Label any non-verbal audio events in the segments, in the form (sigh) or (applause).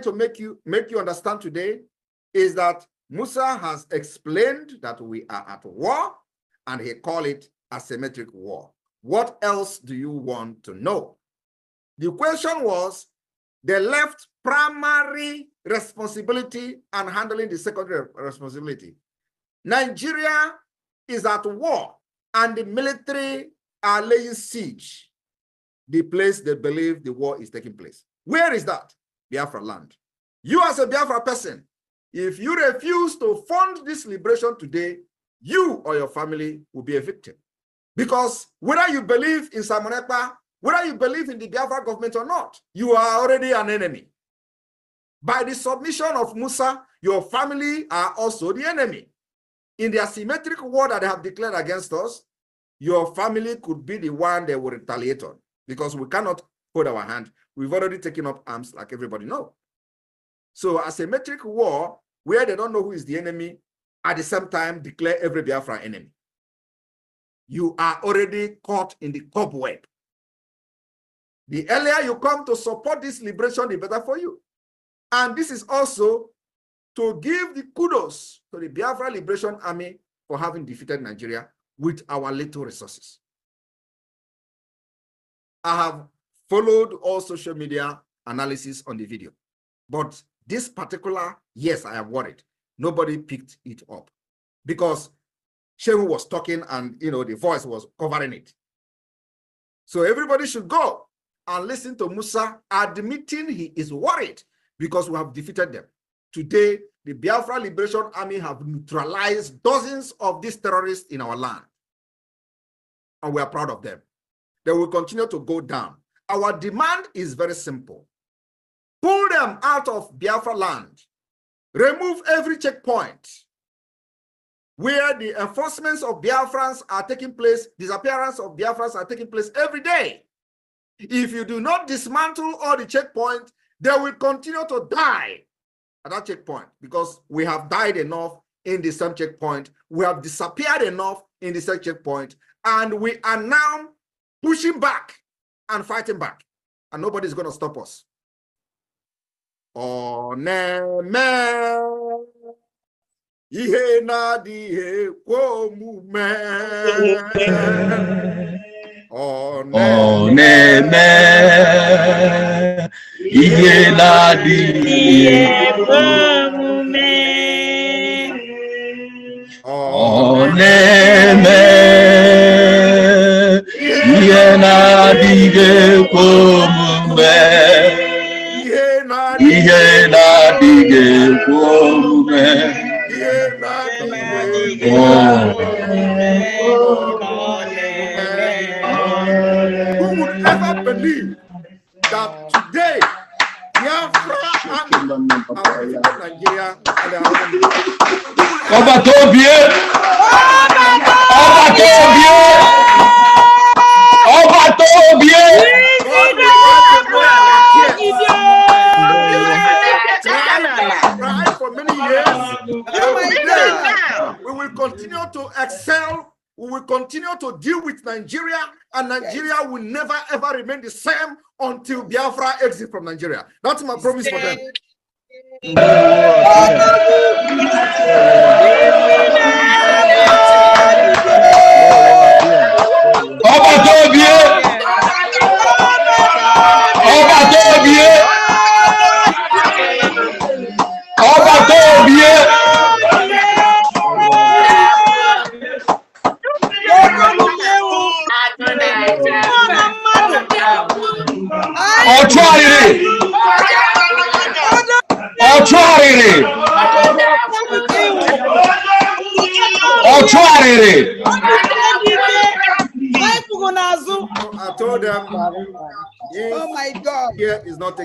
trying to make you make you understand today is that Musa has explained that we are at war and he called it asymmetric war. What else do you want to know? The question was they left primary responsibility and handling the secondary responsibility. Nigeria is at war and the military are laying siege the place they believe the war is taking place. Where is that? Biafra land. You as a Biafra person, if you refuse to fund this liberation today, you or your family will be a victim. Because whether you believe in Simon Ekpa, whether you believe in the Biafra government or not, you are already an enemy. By the submission of Musa, your family are also the enemy. In the asymmetric war that they have declared against us, your family could be the one they will retaliate on because we cannot hold our hand. We've already taken up arms like everybody know. So asymmetric war, where they don't know who is the enemy, at the same time declare every Biafra enemy. You are already caught in the cobweb. The earlier you come to support this liberation, the better for you. And this is also to give the kudos to the Biafra Liberation Army for having defeated Nigeria with our little resources. I have followed all social media analysis on the video. But this particular, yes, I am worried. Nobody picked it up because Shehu was talking and, you know, the voice was covering it. So everybody should go and listen to Musa admitting he is worried because we have defeated them. Today, the Biafra Liberation Army have neutralized dozens of these terrorists in our land. And we are proud of them. They will continue to go down. Our demand is very simple. Pull them out of Biafra land. Remove every checkpoint where the enforcements of Biafrans are taking place, disappearance of Biafrans are taking place every day. If you do not dismantle all the checkpoints, they will continue to die at that checkpoint because we have died enough in the same checkpoint. We have disappeared enough in the same checkpoint. And we are now pushing back and fighting back, and nobody's going to stop us. Oh Oneme ihe na-adịghị kwe omume. Oneme ihe na move kwe Oh Oneme na-adịghị ihe na-adịghị Who would ever believe that today Biafra and Nigeria are the Nigeria yes. will never ever remain the same until Biafra exits from Nigeria. That's my promise for them.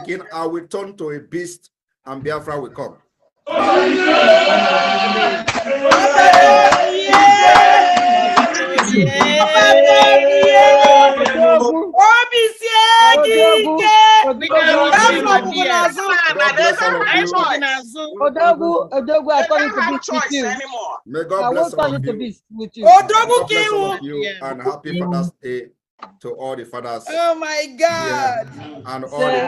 again, I will turn to a beast and Biafra will come. obi sie I turn it to beast with you. May God bless all of you. Odogwu Kiwu. And happy Father's Day. to all the fathers. Oh my God! And all the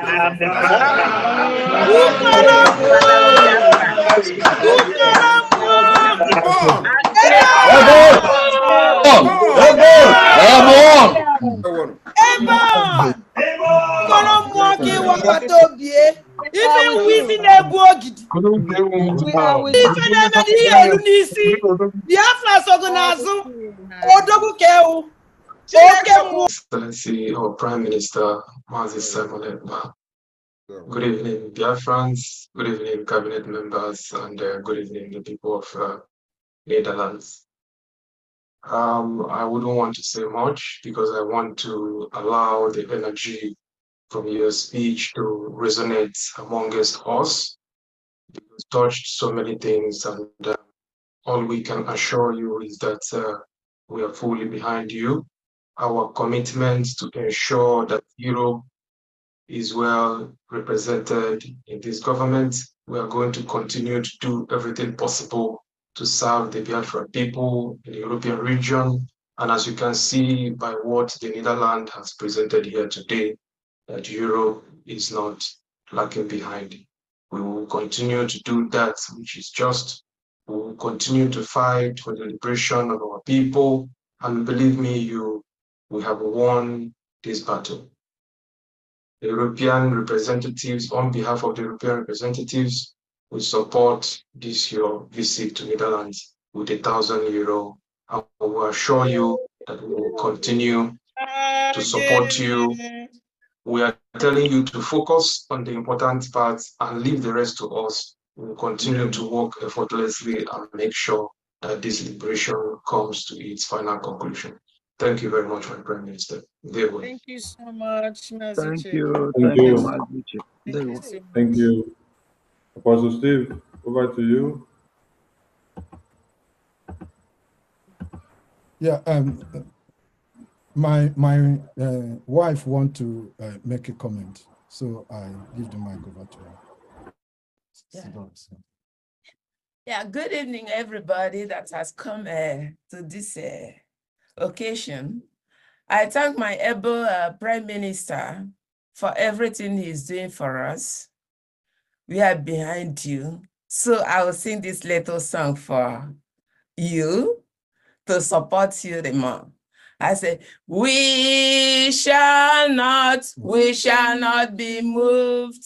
Even within a bogid, even a n'isi, the Afras organizer, Odogu Keu. Excellency or Prime Minister Mazi Simon Good evening, dear friends. Good evening, cabinet members, and uh, good evening, the people of uh, Netherlands. Um, I wouldn't want to say much because I want to allow the energy from your speech to resonate amongst us. You touched so many things, and uh, all we can assure you is that uh, we are fully behind you our commitment to ensure that Europe is well represented in this government. We are going to continue to do everything possible to serve the Biafran people in the European region. And as you can see by what the Netherlands has presented here today, that Europe is not lagging behind. We will continue to do that, which is just. We will continue to fight for the liberation of our people. And believe me, you we have won this battle. The European representatives, on behalf of the European representatives, will support this your visit to Netherlands with a thousand euro. I will assure you that we will continue to support you. We are telling you to focus on the important parts and leave the rest to us. We'll continue to work effortlessly and make sure that this liberation comes to its final conclusion. Thank you very much, my Prime Minister. Thank you so much, Thank you. Thank, you. Thank you. Thank you. Apostle Steve, over to you. Yeah, um, my my uh, wife want to uh, make a comment, so I give the mic over to her. Yeah. yeah, good evening, everybody that has come uh, to this uh, occasion, I thank my able uh, Prime Minister for everything he's doing for us. We are behind you. So I will sing this little song for you to support you the more. I say, we shall not, we shall not be moved.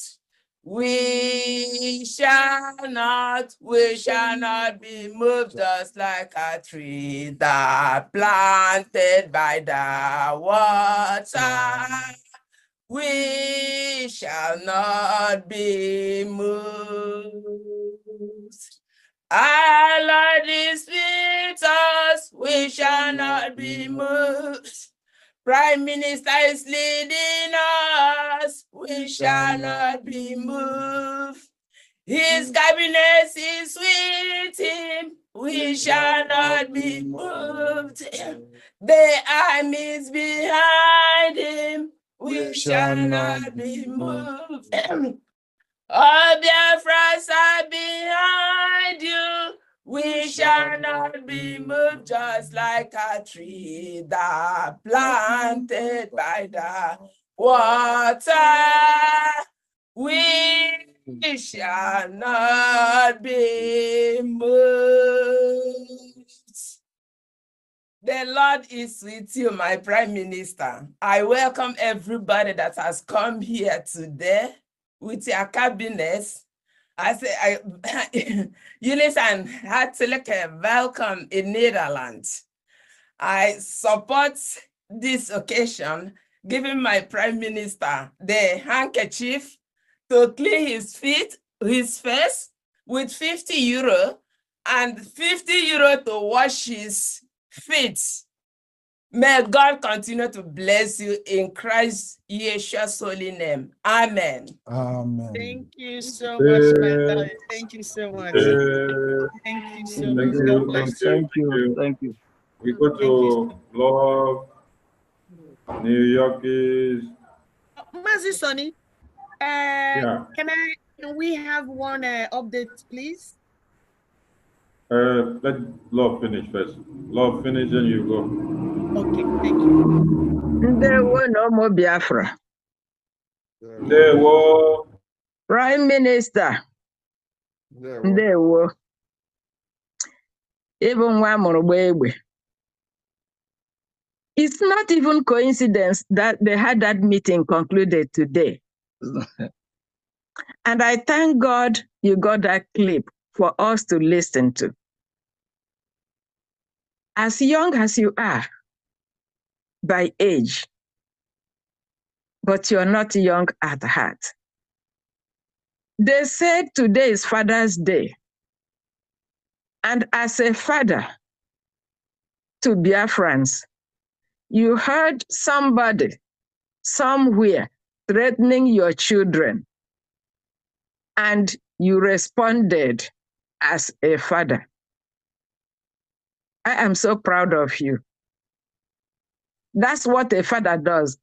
We shall not, we shall not be moved just like a tree that planted by the water. We shall not be moved. Our Lord is with us, we shall not be moved. Prime Minister is leading us. We shall not be moved. His mm. cabinet is with him. We shall not be moved. The armies behind him. We shall not be moved. All Biafras are behind you. We shall not be moved just like a tree that planted by the water. We shall not be moved. The Lord is with you, my Prime Minister. I welcome everybody that has come here today with your cabinets I say, I, (laughs) Eunice and hartelijk welcome in Netherlands. I support this occasion, giving my prime minister the handkerchief to clean his feet, his face with 50 euro and 50 euro to wash his feet May God continue to bless you in Christ Yeshua's holy name. Amen. Amen. Thank you so much, my brother. Thank you so much. Thank you so much. Thank you. Thank you. We go to love New York is. Mercy, Sonny. Uh, yeah. Can I? Can we have one uh, update, please? Uh, let love finish first. Love finish, and you go. Okay, thank you. There were no more Biafra. There were. Prime Minister. There were. Even baby. It's not even coincidence that they had that meeting concluded today. and I thank God you got that clip for us to listen to. As young as you are, by age, but you're not young at heart. They said today is Father's Day. And as a father to Biafrans, you heard somebody somewhere threatening your children, and you responded as a father. I am so proud of you. That's what a father does.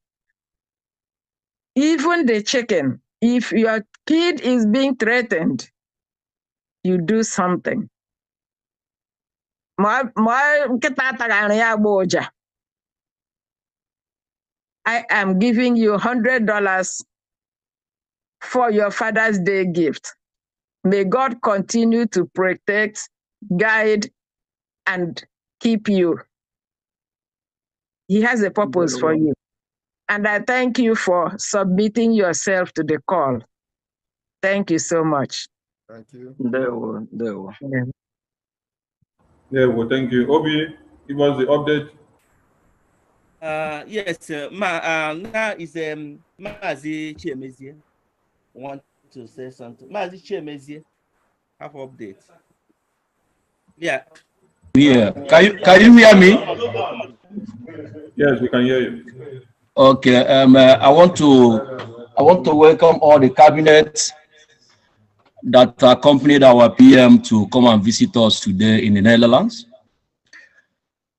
Even the chicken, if your kid is being threatened, you do something. I am giving you $100 for your Father's Day gift. May God continue to protect, guide, and keep you he has a purpose for you. And I thank you for submitting yourself to the call. Thank you so much. Thank you. Ndewo, ndewo. Yeah. well, thank you. Obi, Give us the update. Uh, yes, uh, ma, uh, now is um, Mazi chemezi Want to say something? Mazi chemezi have update. Yeah, yeah. Can you, can you hear me? Yes, we can hear you. Okay. Um, uh, I want to I want to welcome all the cabinet that accompanied our PM to come and visit us today in the Netherlands.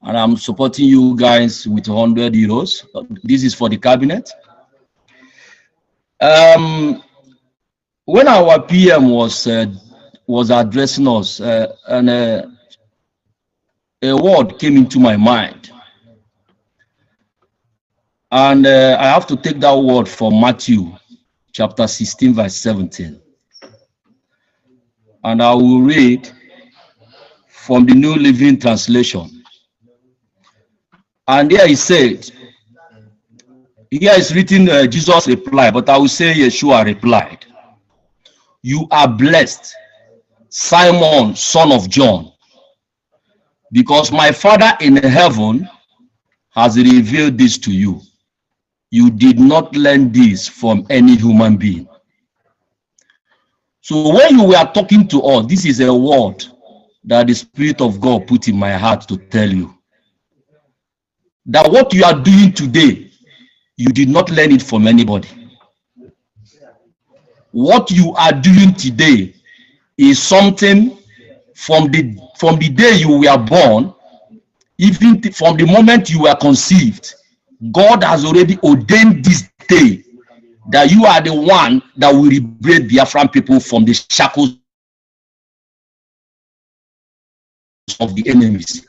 And I'm supporting you guys with 100 euros. This is for the cabinet. Um, when our PM was uh, was addressing us, uh, and uh, a word came into my mind. And uh, I have to take that word from Matthew chapter 16, verse 17. And I will read from the New Living Translation. And there he said, here is written uh, Jesus replied, but I will say Yeshua replied, You are blessed, Simon, son of John, because my Father in heaven has revealed this to you. You did not learn this from any human being. So when you were talking to us, this is a word that the Spirit of God put in my heart to tell you. That what you are doing today, you did not learn it from anybody. What you are doing today is something from the from the day you were born, even from the moment you were conceived, God has already ordained this day that you are the one that will liberate the Afghan people from the shackles of the enemies.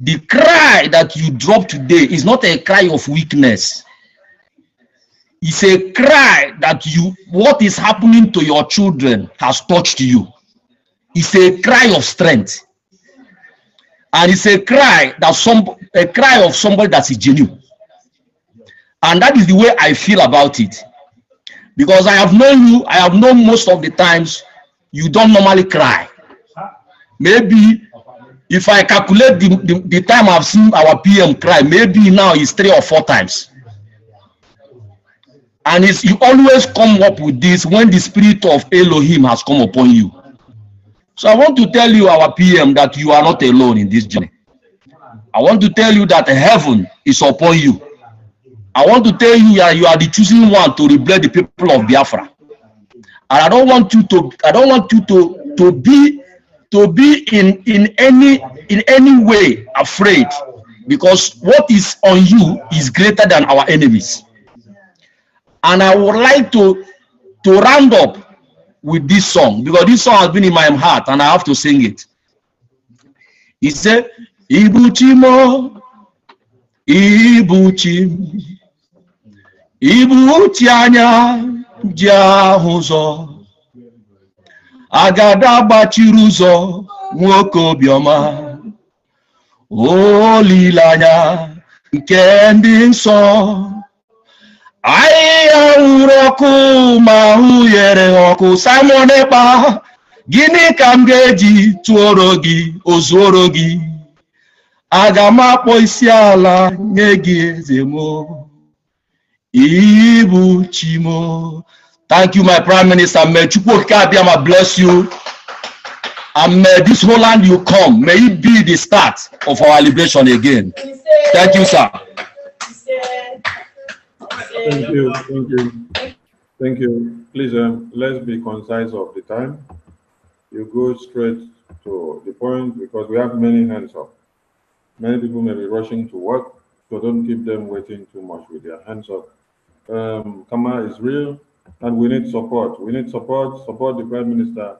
The cry that you drop today is not a cry of weakness. It's a cry that you what is happening to your children has touched you. It's a cry of strength. And it's a cry that some a cry of somebody that is genuine. And that is the way I feel about it. Because I have known you, I have known most of the times you don't normally cry. Maybe if I calculate the, the, the time I've seen our PM cry, maybe now it's three or four times. And it's, you always come up with this when the spirit of Elohim has come upon you. So I want to tell you, our PM, that you are not alone in this journey. I want to tell you that heaven is upon you. I want to tell you that you are the choosing one to rebuild the people of Biafra. And I don't want you to, I don't want you to, to be to be in, in any in any way afraid because what is on you is greater than our enemies. And I would like to to round up with this song because this song has been in my heart and I have to sing it. He said, Ibuchimo, Ibuchim, Ibuchianya, Jahuzo, Agada Bachiruzo, Mwoko Bioma, Olilanya, Kending Song. ahịhịa nwụrụ ọkụ ma ahụ ọkụ Simon Ekpa gịnị ka m ga-eji tụọrọ gị ozuoro gị aga m akpọ isi ala nye gị eze mo ibu chimo thank you my prime minister may chukwu okike abịa ma bless you and may this whole land you come may it be the start of our liberation again thank you sir Thank you, thank you, thank you. Please, um, let's be concise of the time. You go straight to the point because we have many hands up. Many people may be rushing to work, so don't keep them waiting too much with their hands up. Um, Kama is real, and we need support. We need support. Support the Prime Minister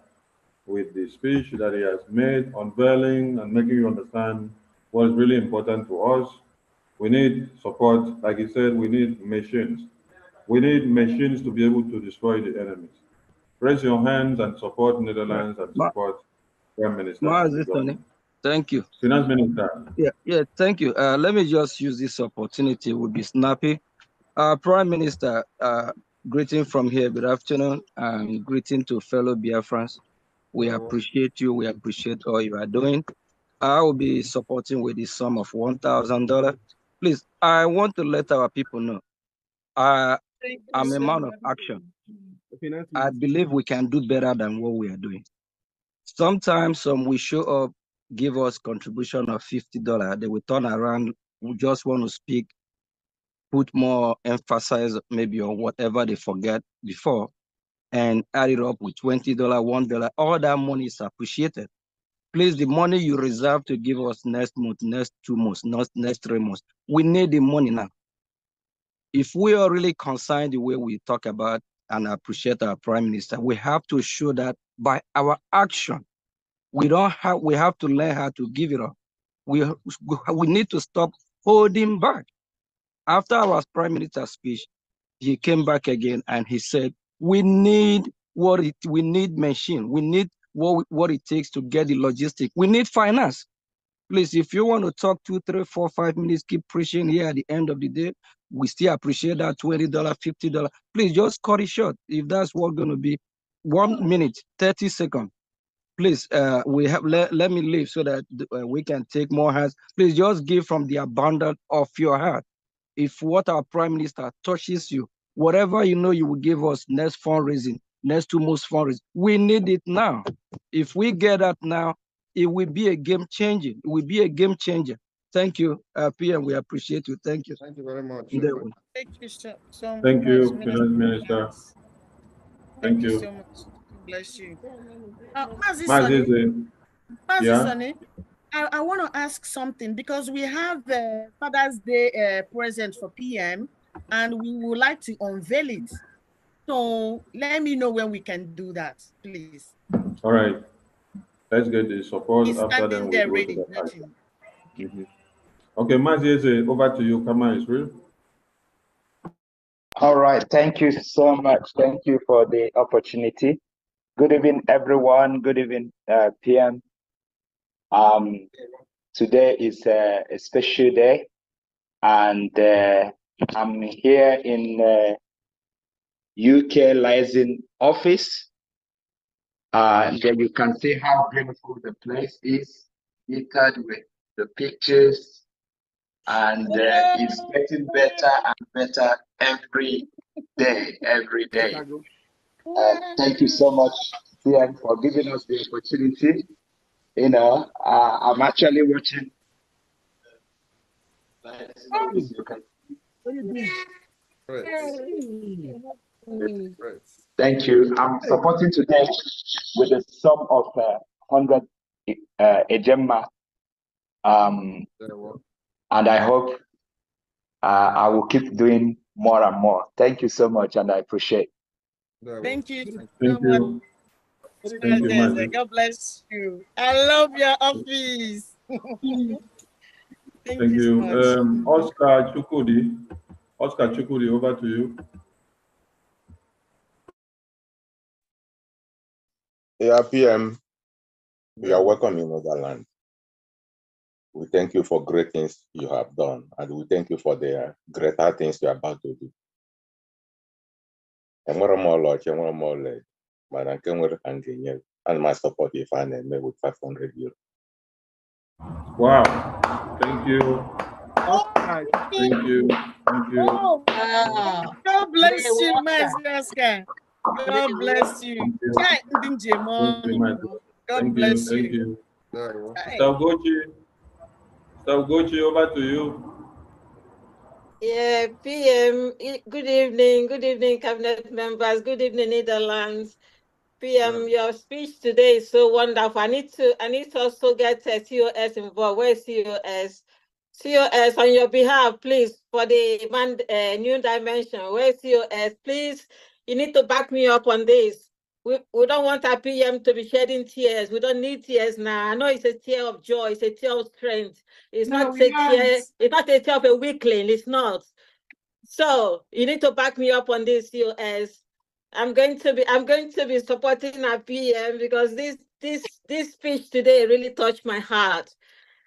with the speech that he has made, unveiling and making you understand what is really important to us we need support. Like you said, we need machines. We need machines to be able to destroy the enemies. Raise your hands and support Netherlands and support Ma Prime Minister. Ma Thank you. Finance Minister. Yeah, yeah, thank you. Uh, let me just use this opportunity, we'll be snappy. Uh, Prime Minister, uh, greeting from here, good afternoon, and greeting to fellow Biafrans. We appreciate you, we appreciate all you are doing. I will be supporting with the sum of $1,000 Please, I want to let our people know. I, am a man of action. I believe we can do better than what we are doing. Sometimes some will show up, give us contribution of $50. They will turn around, we just want to speak, put more emphasis maybe on whatever they forget before, and add it up with $20, $1. All that money is appreciated please, the money you reserve to give us next month, next two months, not next three months, we need the money now. If we are really concerned the way we talk about and appreciate our prime minister, we have to show that by our action, we don't have, we have to learn how to give it up. We, we need to stop holding back. After our prime minister's speech, he came back again and he said, we need what it, we need machine, we need what, what it takes to get the logistic. We need finance. Please, if you want to talk two, three, four, five minutes, keep preaching here at the end of the day. We still appreciate that $20, $50. Please just cut it short if that's what's going to be. One minute, 30 seconds. Please, uh, we have let, let me leave so that uh, we can take more hands. Please just give from the abundance of your heart. If what our prime minister touches you, whatever you know you will give us next fundraising, next to most foreign. We need it now. If we get that now, it will be a game changer. It will be a game changer. Thank you, uh, PM. We appreciate you. Thank you. Thank you very much. Thank you sir. so Thank much, you, Minister. Minister. Thank, you. so much. Bless you. Uh, Mazi Sani, yeah. I, I want to ask something because we have the uh, Father's Day uh, present for PM and we would like to unveil it. So let me know when we can do that, please. All right. Let's get the support He's after them. There we'll ready, the mm -hmm. Okay, Mazieze, over to you. Come on, Israel. All right. Thank you so much. Thank you for the opportunity. Good evening, everyone. Good evening, uh, PM. Um, today is a, a special day, and uh, I'm here in uh, UK licensing office. Uh, there you can see how beautiful the place is, littered with the pictures, and uh, it's getting better and better every day, every day. Uh, thank you so much, Ian, for giving us the opportunity. You know, uh, I'm actually watching. you Thank you. I'm supporting today with a sum of uh, 100 uh, Ejemma. Um, and I hope uh, I will keep doing more and more. Thank you so much, and I appreciate Thank you. Thank you. Thank you. Thank you God bless you. I love your office. (laughs) Thank, Thank, you. So um, Oscar Chukudi. Oscar Chukudi, over to you. Yeah, PM, we are welcome in land. We thank you for great things you have done, and we thank you for the greater things you are about to do. And m ọlaọcha, enwere m ọlaedo, mana nke nwere ka m ga-enye ana m asọpọt ife a na-eme with 500 euro. Wow, thank you. Thank you. Thank you. Wow. God bless you, my God bless you. God bless you. Mr. Gochi, you. Gochi, over to you. Yeah, PM, good evening, good evening, cabinet members, good evening, Netherlands. PM, your speech today is so wonderful. I need to, I need to also get uh, COS involved. Where's COS? COS, on your behalf, please, for the man, uh, new dimension, where's COS? Please you need to back me up on this. We, we don't want our PM to be shedding tears. We don't need tears now. I know it's a tear of joy. It's a tear of strength. It's no, not a not tear. It's not a tear of a weakling. It's not. So you need to back me up on this, US. I'm going to be I'm going to be supporting our PM because this this this speech today really touched my heart.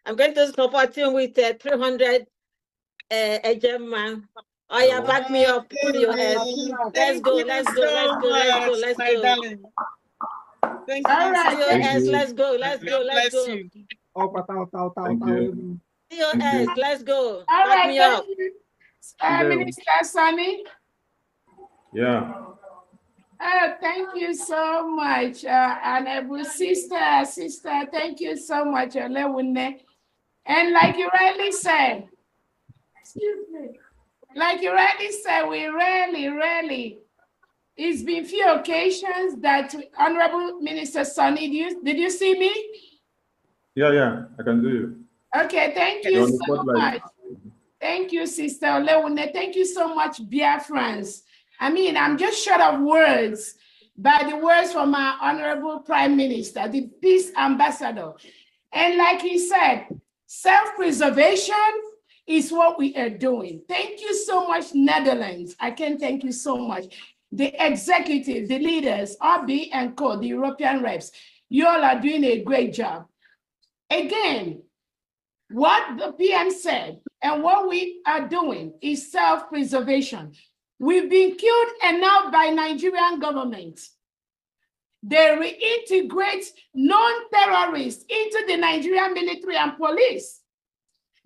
I'm going to support him with uh, 300 uh, German Oh yeah, back me up. Pull your head. Let's go. Let's go. Let's go. Let's go. Let's go. Thank you. All right. Your hands. Let's go. Let's go. Let's go. Up, up, up, up, up. Your hands. Let's go. back right, me up. Uh, Minister Sunny. Yeah. Oh, thank you so much, uh, every Sister, Sister. Thank you so much, Olewunne. And like you rightly said, excuse me. Like you already said, we rarely, rarely. It's been few occasions that Honorable Minister Sonny, did you, did you see me? Yeah, yeah, I can do you. Okay, thank you so much. Thank you, Sister Leone. Thank you so much, Biafrans. I mean, I'm just short of words by the words from our Honorable Prime Minister, the Peace Ambassador. And like he said, self-preservation is what we are doing. Thank you so much, Netherlands. I can thank you so much. The executive, the leaders, RB and Co, the European reps, you all are doing a great job. Again, what the PM said and what we are doing is self-preservation. We've been killed enough by Nigerian government. They reintegrate non-terrorists into the Nigerian military and police.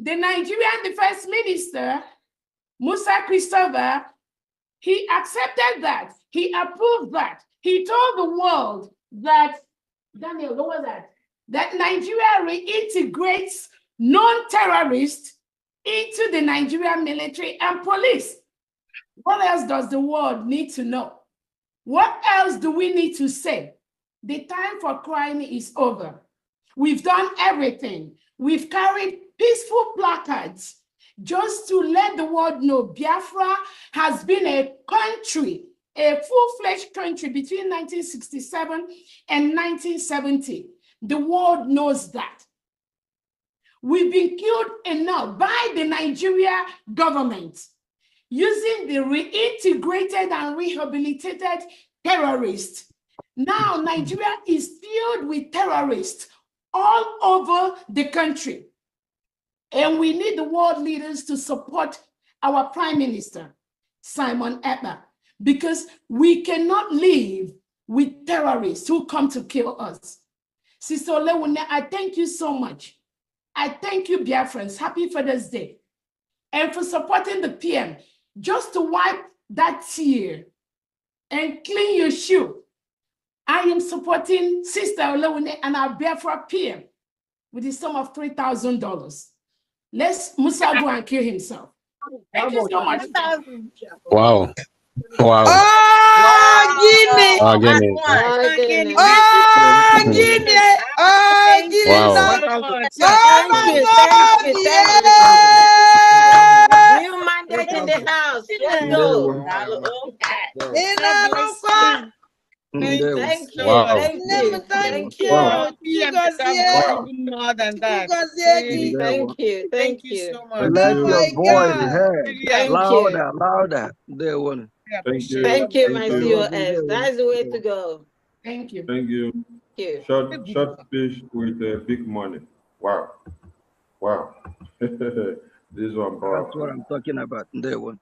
The Nigerian defense minister, Musa Christopher, he accepted that. He approved that. He told the world that, Daniel, what was that? That Nigeria reintegrates non terrorists into the Nigerian military and police. What else does the world need to know? What else do we need to say? The time for crying is over. We've done everything. We've carried peaceful placards just to let the world know Biafra has been a country, a full-fledged country between 1967 and 1970. The world knows that. We've been killed enough by the Nigeria government using the reintegrated and rehabilitated terrorists. Now Nigeria is filled with terrorists all over the country. And we need the world leaders to support our Prime Minister, Simon Eber, because we cannot live with terrorists who come to kill us. Sister Olewune, I thank you so much. I thank you, Biafrans. Happy Father's Day. And for supporting the PM, just to wipe that tear and clean your shoe. I am supporting Sister Olewune and our Biafra PM with the sum of $3,000. Let's Musa go and kill himself. (laughs) Thank you so much. Wow. Wow. Oh, Guinea. Oh, Guinea. Oh, Guinea. Oh, Guinea. Oh, wow. Oh, my God. Yeah. New mandate in the house. Let's go. In the Thank, thank you. Wow. Thank, you. Thank you. Thank You guys wow. more than that. You guys thank you. Thank you so much. Let oh your voice heard louder, louder. There one. Thank you. Thank you, my COS. That's the way to go. Thank you. Thank you. Thank you. Short, short fish with uh, big money. Wow. Wow. (laughs) this one, bro. That's what I'm talking about. There one.